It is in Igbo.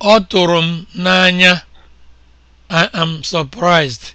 Ọ tụrụ m n'anya I am surprised.